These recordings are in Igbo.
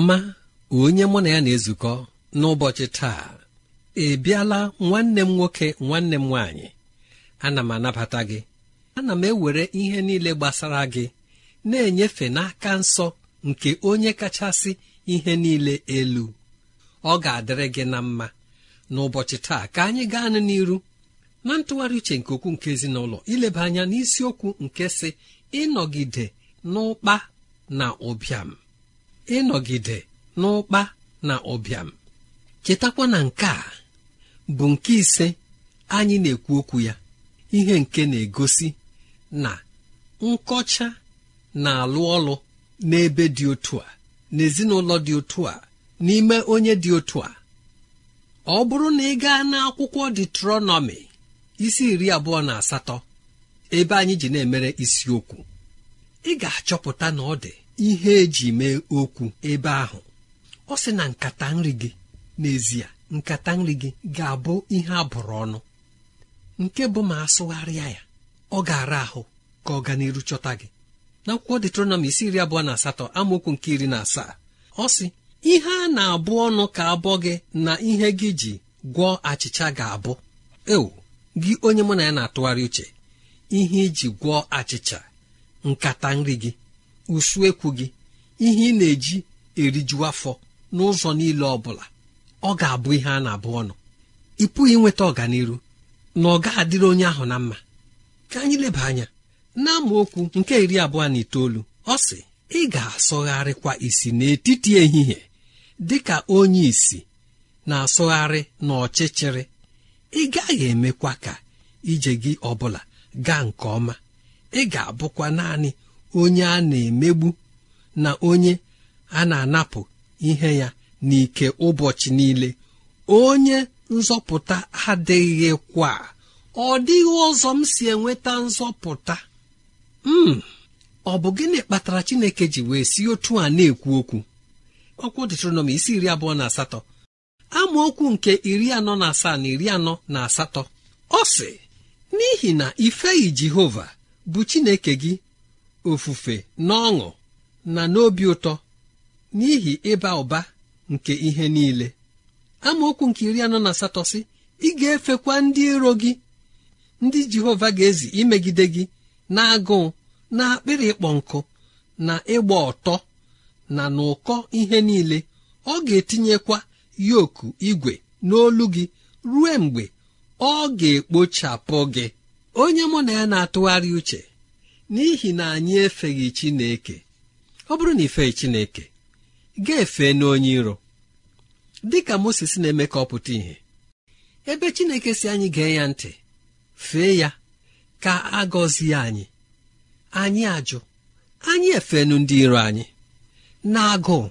ọma onye mụ na ya na-ezukọ n'ụbọchị taa ị bịala nwanne m nwoke nwanne m nwaanyị ana m anabata gị ana m ewere ihe niile gbasara gị na-enyefe n'aka nsọ nke onye kachasị ihe niile elu ọ ga-adịrị gị na mma n'ụbọchị taa ka anyị gaa nụ n'iru na ntụgharị uche nke okwu nke ezinụlọ ileba anya n'isiokwu nke si ịnọgide n'ụkpa na ụbịam ịnọgide n'ụkpa na ụbịam chetakwa na nke a bụ nke ise anyị na-ekwu okwu ya ihe nke na-egosi na nkọcha na-alụ ọlụ n'ebe dị otu a n'ezinụlọ dị otu a n'ime onye dị otu a ọ bụrụ na ị gaa n'akwụkwọ detronọmi isi iri abụọ na asatọ ebe anyị ji na-emere isiokwu ị ga-achọpụta na ọ dị ihe eji mee okwu ebe ahụ ọ sị na nkata nri gị n'ezie nkata nri gị ga-abụ ihe a bụrụ ọnụ nke bụ ma asụgharịa ya ọ ga-ara ahụ ka ọ ga n'iru chọta gị n'akwụkwọ detronọm isi iri abụọ na asatọ amaokwu nke iri na asaa ọ sị ihe a na-abụ ọnụ ka abụọ gị na ihe gị ji gwọọ achịcha ga-abụ eo gị onye mụ na ya na-atụgharị uche ihe iji gwọọ achịcha nkata nri gị usuekwu gị ihe ị na-eji eriju afọ n'ụzọ niile ọ bụla ọ ga-abụ ihe a na-abụ ọnụ ị pụghị inweta ọganiru na ọ ga-adịrị onye ahụ na mma ka anyị leba anya na okwu nke iri abụọ na itoolu ọ sị ị ga-asọgharịkwa isi n'etiti ehihie dị ka onye isi na-asọgharị n'ọchịchịrị ị gaghị emekwa ka ije gị ọbụla gaa nke ọma ị ga-abụkwa naanị onye a na-emegbu na onye a na-anapụ ihe ya n'ike ụbọchị niile onye nzọpụta adịghịkwa ọ dịghị ụzọ m si enweta nzọpụta m hmm, ọ bụ gịnị kpatara Chineke ji wee si otu a na-ekwu okwu ọkwụ m isi iri abụọ na asatọ amaokwu nke iri anọ na asaa na iri anọ na asatọ ọ sị n'ihi na ifeghị Jehova bụ Chineke gị ofufe n'ọṅụ na n'obi ụtọ n'ihi ịba ụba nke ihe niile amaokwu nke iri anọ na asatọ sị ị ga-efekwa ndị iro gị ndị jehova ga-ezi imegide gị na-agụụ na akpịrị ịkpọ nkụ na ịgba ọtọ na n'ụkọ ihe niile ọ ga-etinyekwa yoku igwe n'olu gị ruo mgbe ọ ga-ekpochapụ gị onye mụ na ya na-atụgharị uche n'ihi na anyị efeghị Chineke ọ bụrụ na ifeghị Chineke ga-efe n'onye iro dị ka na-eme ka ọ pụta ìhè ebe Chineke si anyị gee ya ntị fee ya ka a gọzie anyị anyị ajụ anyị efenu ndị iro anyị na-agụụ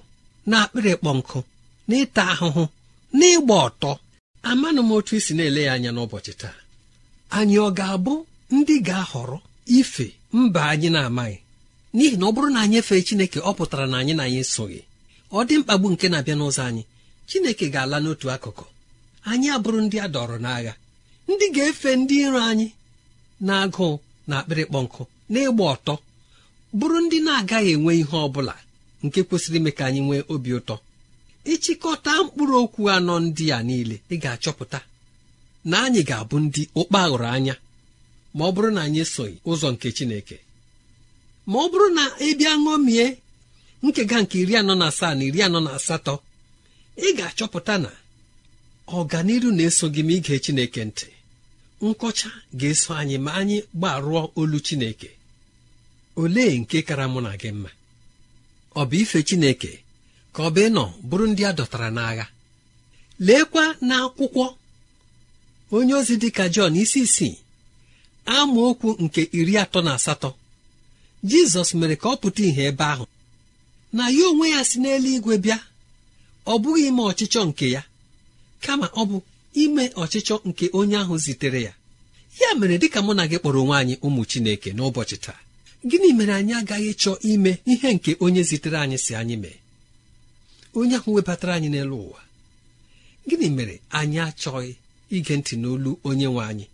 na-akpịrị kpọ nkụ na ịta ahụhụ na ịgba ọtọ amanụ m otu isi na-ele ya anya n'ụbọchị taa anyị ọ ga-abụ ndị ga-ahọrọ ife mba anyị na-amaghị n'ihi na ọ bụrụ na anyị efee chineke ọ pụtara na anyị na anyị soghị ọ dị mkpagbu nke na-abịa n'ụzọ anyị chineke ga-ala n'otu akụkụ anyị abụrụ ndị a dọrọ n'agha ndị ga-efe ndị iro anyị na-agụụ na akpịrịkpọ nkụ na ọtọ bụrụ ndị na-agaghị enwe ihe ọ bụla nke kwesịrị ime ka anyị nwee obi ụtọ ịchịkọta mkpụrụ okwu anọ ndị a niile ị ga-achọpụta na anyị ga-abụ ndị ụkpa anya ma ọ bụrụ na anyị esoghị ụzọ nke chineke ma ọ bụrụ na ị bịa ṅomie nkega nke iri anọ na asaa na iri anọ na asatọ ị ga-achọpụta na ọganiru na-eso gị ma ige chineke ntị nkọcha ga-eso anyị ma anyị gbarụọ olu chineke olee nke kara mụ na gị mma ọ bụ ife chineke ka ọ bụ ịnọ bụrụ ndị a dọtara n'agha leekwa n'akwụkwọ onye ozi dịka Jọn isi isii amaokwu nke iri atọ na asatọ jizọs mere ka ọ pụta ìhè ebe ahụ na ya onwe ya si n'eluigwe bịa ọ bụghị ime ọchịchọ nke ya kama ọ bụ ime ọchịchọ nke onye ahụ zitere ya ya mere dịka mụ na gị kpọrọ onwe anyị ụmụ chineke n'ụbọchị taa gịnị mere anyị agaghị chọọ ime ihe nke onye zitere anyị si anyị mee onye ahụ webatara anyị n'elu ụwa gịnị mere anyị achọghị ige ntị n'olu onye nwe anyị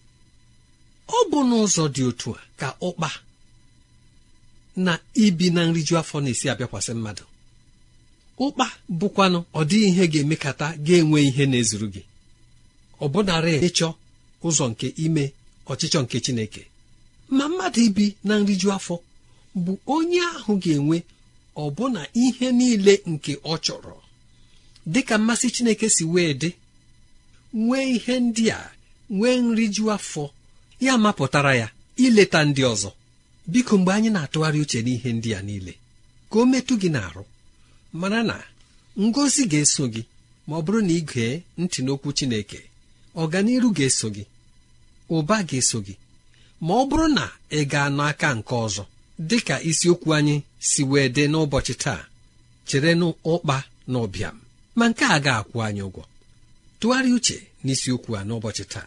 ọ bụ n'ụzọ dị otu a ka ụkpa na ibi na nriju afọ na-esi abịakwasị mmadụ ụkpa bụkwanụ ọ dịghị ihe ga-emekata ga-enwe ihe na-ezuru gị ọ bụnarị ịchọ ụzọ nke ime ọchịchọ nke Chineke ma mmadụ ibi na nriju afọ bụ onye ahụ ga-enwe ọbụna ihe niile nke ọ chọrọ dịka mmasị Chineke si wee dị nwee ihe ndị a nwee nriju afọ ya mapụtara ya ileta ndị ọzọ biko mgbe anyị na-atụgharị uche n'ihe ndị a niile ka o metụ gị n'arụ mana na ngozi ga-eso gị ma ọ bụrụ na ị gee ntị n'okwu Chineke ọganiru ga-eso gị ụba ga-eso gị ma ọ bụrụ na ị gaa n'aka nke ọzọ dị ka isiokwu anyị si wee dị n'ụbọchị taa chere n'ụkpa na ụbịam ma nke a ga-akwụ anyị ụgwọ tụgharịa uche n'isiokwu a n'ụbọchị taa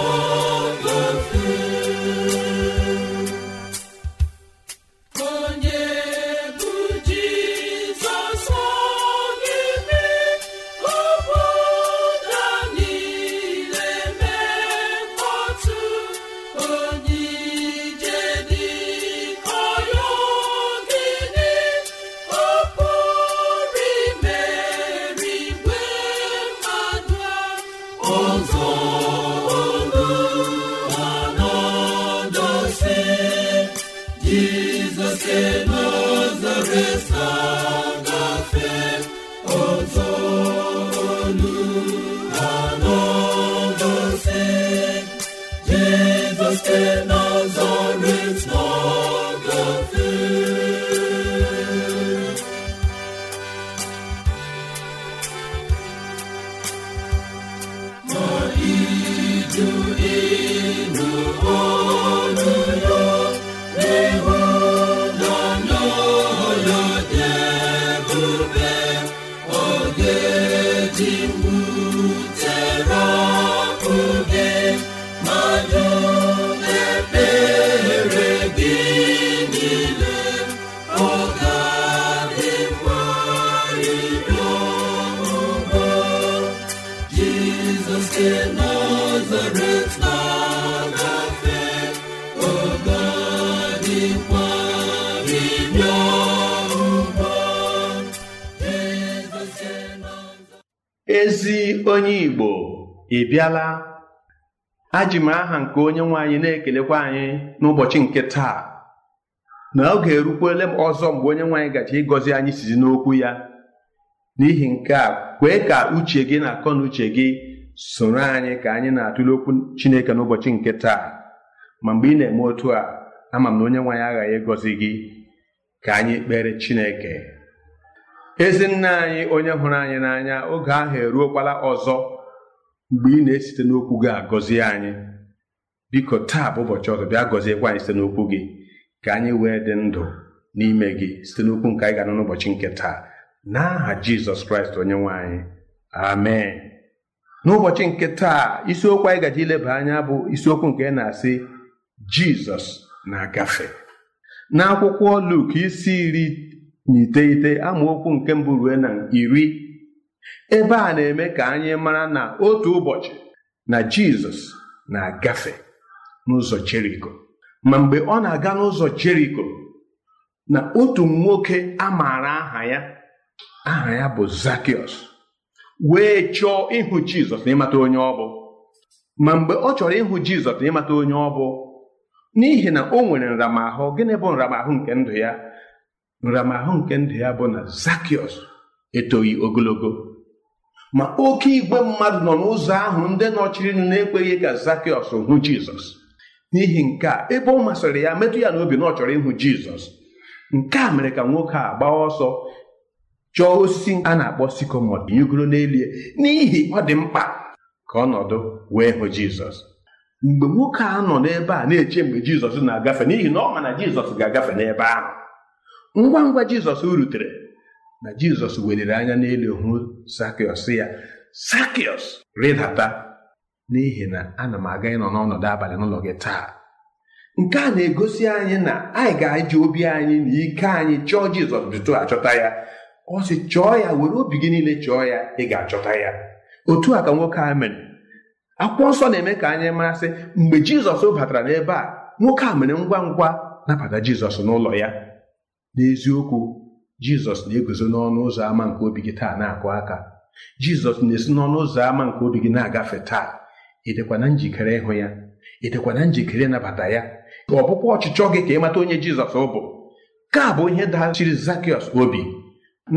onye Igbo ị bịala aji m aha nke onye nwe anyị na-ekelekwa anyị n'ụbọchị nke taa na oge erukwele m ọzọ mgbe onye nwe anyị gaji ịgọzi anyị sizi n'okwu ya n'ihi nke a kwee ka uche gị na akọ na uche gị soro anyị ka anyị na-atụle okwu Chineke n'ụbọchị nke taa ma mgbe ị na-eme otu a ama m na onye nwe anyị aghaghị ịgọzi gị ka anyị kpere Chineke ezi nna anyị onye hụrụ anyị n'anya oge ahụ eruokwala ọzọ mgbe ị na-esite n'okwu gị agọzie anyị biko taa bụ ụbọchị ọzọ bịa gọziekwa anyị site n'okwu gị ka anyị wee dị ndụ n'ime gị site n'okwu nke anyị ga-anọ n'ụbọchị nke taa n'aha jizọs kraịst onye nwe anyị amen n'ụbọchị nke taa isiokwu anyị gaji ileba anya bụ isiokwu nke na-asị jizọs na-agafe n'akwụkwọ luk isi iri N'ite ite, amaokwu nke mbụ rue na iri ebe a na-eme ka anyị mara na otu ụbọchị na jizọs na-agafe n'ụzọ jeriko ma mgbe ọ na-aga n'ụzọ jeriko na otu nwoke a maara aha ya aha ya bụ zakiọs wee chọọ ịhụ jizọs ịmata onye ọ bụ ma mgbe ọ chọrọ ịhụ jizọs ịmata onye ọ bụ n'ihi na o nwere nramahụ gịnị bụ nramahụ nke ndụ ya nramahụ nke ndụ ya bụ na zakiọs etoghị ogologo ma oke igwe mmadụ nọ n'ụzọ ahụ ndị nụ na-ekweghị ka zakiọs hụ jizọs n'ihi nke a ebe ọ masịrị ya metụ ya n'obi na ọ chọrọ ịhụ jizọs nke a mere ka nwoke a gbaa ọsọ chọọ osisi a na-akpọ sikomod yigoro n'elie n'ihi ọ dị mkpa ka ọnọdụ wee hụ jizọs mgbe nwoke a nọ n'ebe a na-eche mgbe jizọs na-agafe n'ihi na ọ ma na jizọs ga-agafe n'ebe ahụ ngwa ngwa jizọs rutere na jizọs weliri anya n'elu hụ sakiọs ya sakiọs rịdata n'ihi na ana m aga ịnọ n'ọnọdụ abalị n'ụlọ gị taa nke a na-egosi anyị na anyị ga-eji obi anyị na ike anyị chọọ jizọs bitu achọta ya ọ sị chọọ ya were obi gị niile chọọ ya ị ga-achọta ya otu a ka nwoke a mere akwụkwọ nsọ na-eme ka anyị masị mgbe jizọs batara n'ebe a nwoke a mere ngwa ngwa nabata jizọs n'ụlọ ya n'eziokwu jizọs na-eguzo n'ọnụ ụzọ ámá nke obi gị taa na-akụ aka jizọs na-esi n'ọnụ ụzọ ámá nke obi gị na-agafe taa ịdịkwana njikere ịhụ ya ịdịkwana njikere ịnabata ya ọ bụkwa ọchịchọ gị ka ị mata onye jizọs bụ ka bụ ihe dachiri Zakịọs obi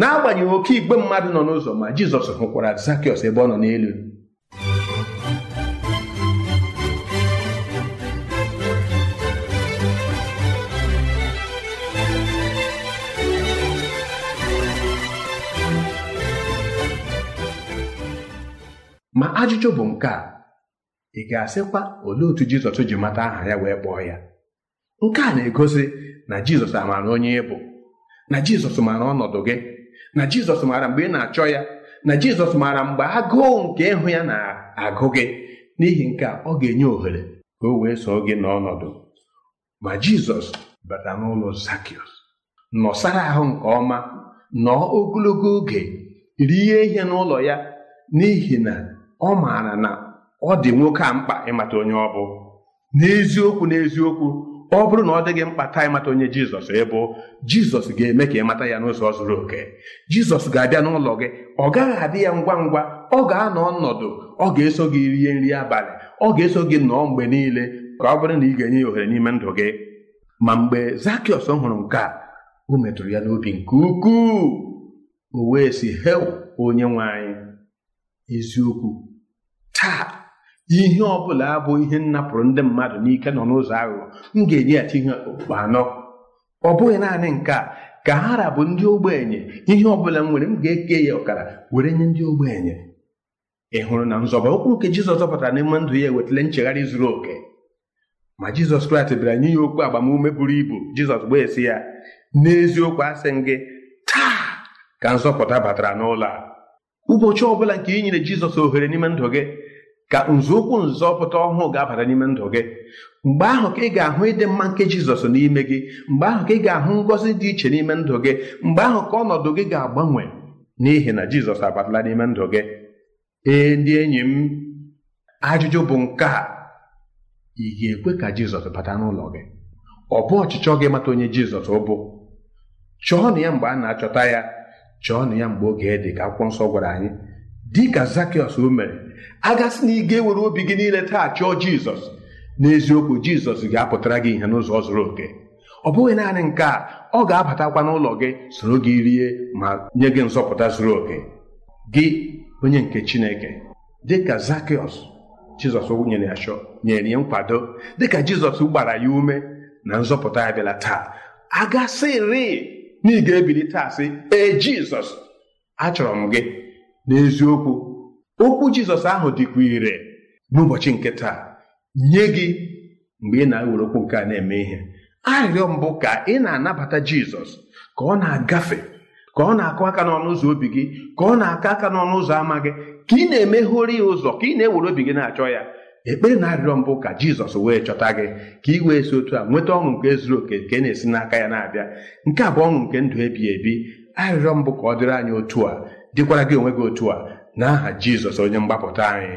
n'agbanyeghị oke igbe mmadụ nọ n'ụzọ ma jizọs hụkwara Zakịọs ebe ọ nọ n'elu ma ajụjụ bụ nke a ị ga-asịkwa olee otu jizọs ji mata aha ya wee kpọọ ya nke a na-egosi na jizọs amaara onye ị bụ na jizọs maara ọnọdụ gị na jizọs maara mgbe ị na-achọ ya na jizọs maara mgbe agụụ nke ịhụ ya na-agụ gị n'ihi nke ọ ga-enye ohere ka o wee soo gị n'ọnọdụ ma jizọs bata n'ụlọ nọsara ahụ nke ọma nọọ ogologo oge rie ihe n'ụlọ ya n'ihi na ọ maara na ọ dị nwoke a mkpa ịmata onye ọ bụ n'eziokwu n'eziokwu ọ bụrụ na ọ dịghị mkpa taa ịmata onye jizọs ịbụ jizọs ga-eme ka ịmata ya n'ụzọ zuru oke jizọs ga-abịa n'ụlọ gị ọ gaghị adị ya ngwa ngwa ọ ga-anọ ọnọdụ ọ ga-eso gị rie nri abalị ọ ga-eso gị nọọ mgbe niile ka ọ bụrụ na ị ga-enye ya ohere n'ime ndụ gị ma mgbe zakiọs hụrụ nke a o metụrụ ya n'obi nke ukwuu o wee si hel onye nwe anyị eziokwu taa ihe ọ bụla abụ ihe m napụrụ ndị mmadụ n'ike nọ n'ụzọ aghụghọ m ga-enyeghachi ihe okpukpe anọ ọ bụghị naanị nke a ka ha rabụ ndị ogbenye ihe ọ bụla m nwere m ga-eke ya ọkara were nye ndị ogbenye ị hụrụ na nzọba okwu nke Jizọs zọpụtara n'ime ndụ ya ewetala nchegharị zuru oke ma Jizọs Kraịst bịara nye ya okwu agbamume buru ibu Jizọs gbaa esi ya n'eziokwu asị m gị taa ka nzọpụta batara n'ụlọ a ụbọchị ọbụla nke ị nyere Jizọs ohere n'ime ndụ gị ka nzọụkwụ nzọpụta ọhụụ ga-abata n'ime ndụ gị mgbe ahụ ka ị ga-ahụ ịdị mma nke jizọs n'ime gị mgbe ahụ ka ị ga-ahụ ngọzi dị iche n'ime ndụ gị mgbe ahụ ka ọnọdụ gị ga-agbanwe n'ihi na jizọs abatala n'ime ndụ gị ee ndị enyi m ajụjụ bụ nke a ị ga-ekwe ka jizọs bata n'ụlọ gị ọ bụ ọchịchọ gị mata onye jizọs ụbụ? chọọ na ya mgbe a na-achọta ya chọọ na ya mgbe oge dị ka akwụkwọ nsọ gwara anyị dịka zakiọs o mere agasị na ewere obi gị niile taa chọọ jizọs n'eziokwu jizọs ga-apụtara gị ihe n'ụzọ zuru oke ọ bụghị naanị nke a ọ ga-abatakwa n'ụlọ gị soro gị rie ma nye gị nzọpụta zuru oke gị onye nke chineke dịka zakiọs jizọs nyere ya chọ nyere ya nkwado dịka jizọs gbara ya ume na nzọpụta ya bịala taa agasịrị na ị ga-ebili taa sị ee jizọs achọrọ m gị n'eziokwu okwu jizọs ahụ dịkwa ire n'ụbọchị nke taa nye gị mgbe ị na-ewere okwu nke a na-eme ihe arịrịọ mbụ ka ị na-anabata jizọs ka ọ na-agafe ka ọ na-akụ aka n'ọnụ ụzọ obi gị ka ọ na akọ aka n'ọnụ ụzọ ama gị ka ị na emeghori ya ụzọ ka ị na-ewere obi gị na-achọ ya ekpere na arịrịọ mbụ ka jizọs wee chọta gị ka ị wee si otu a nweta ọṅụ nke zuru oke nke na-esi n'aka ya na-abịa nke a bụ ọṅụ nke ndụ ebighị ebi arịrịọ mbụ ka ọ dịrị anyị otu a dịkwara gị onwe gị otu a n'aha Jizọs onye mgbapụta anyị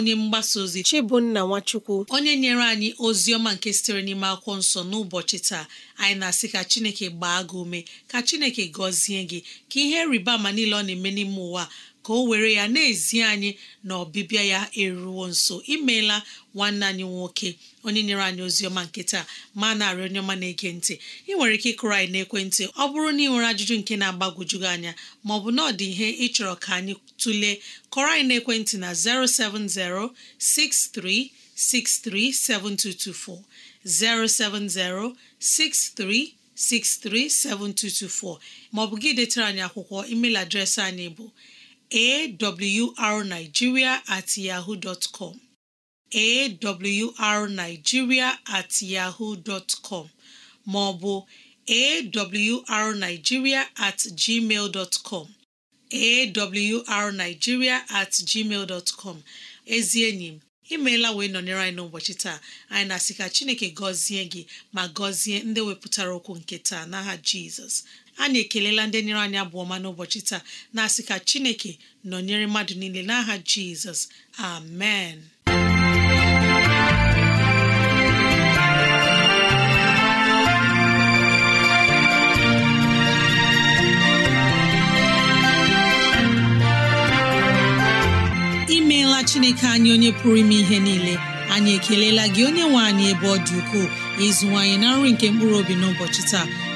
onye mgbasa ozi Chibunna Nwachukwu onye nyere anyị ozi ọma nke sitere n'ime akwụkwọ nsọ n'ụbọchị taa anyị na-asị ka Chineke gbaa gị ume ka Chineke gọzie gị ka ihe rịba ama niile ọ na-eme n'ime ụwa ka o were ya na-ezi anyị na ọbịbịa ya eruwo nso imeela nwanne anyị nwoke onye nyere anyị ozi ọma nke taa ma na-arịọ onye ọma na-ege ntị ị nwere ike ịkụrụ anyị n'ekwentị ọ bụrụ na ị nwere ajụjụ nke na-agbagwoju gị anya ma ọ bụ na ọ dị ihe ịchọrọ ka anyị tụlee kọrọ anyị n'ekwentị na 07063637224 07063 637224 maọbụ gị detara anyị akwụkwọ email adreesị anyị bụ awrnigeria at yahoo dot com awrnigeria at yahoo dot maọbụ awrnigeria at gmail dot com at gmail dot com ezi enyi m imeela wee nọnyere anyị n'ụbọchị taa anyị na-asị ka Chineke gọzie gị ma gọzie ndị wepụtara okwu nke taa n'aha Jizọs A na-ekelela ndị nyere anyị abụ ọma n'ụbọchị taa na-asị ka chineke nọnyere mmadụ niile n'aha jizọs amen imeela chineke anyị onye pụrụ ime ihe niile anyị ekelela gị onye nwe anyị ebe ọ dị ukwuu ịzụwanyị na nri nke mkpụrụ obi n'ụbọchị taa